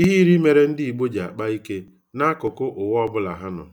Ihe iri mere ndị Igbo ji akpa ike n'akụkụ ụwa ọbụla ha nọ.